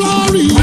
glory